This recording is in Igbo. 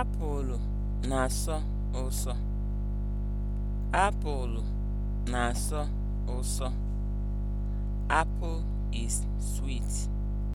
Apụl na-asọ ụsọ. Apụl na-asọ ụsọ. Apple is sweet.